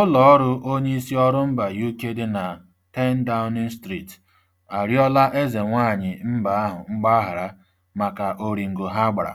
ụlọ Ụlọọrụ onyeisi ọrụ mba UK dị na 10 Downing Street arịọla eze nwaanyị mba ahụ mgbaghara maka oringo ha gbara